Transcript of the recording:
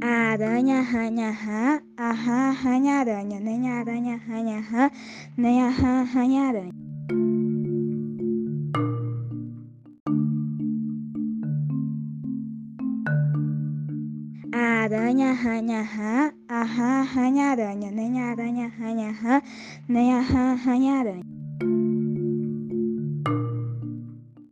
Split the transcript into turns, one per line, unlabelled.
啊！呀！呀！呀！哈！啊！哈！呀！呀！呀！呀！呀！呀！呀！呀！哈！呀！呀！呀！呀！啊！呀！呀！呀！哈！啊！哈！呀！呀！呀！呀！呀！呀！呀！哈！呀！呀！呀！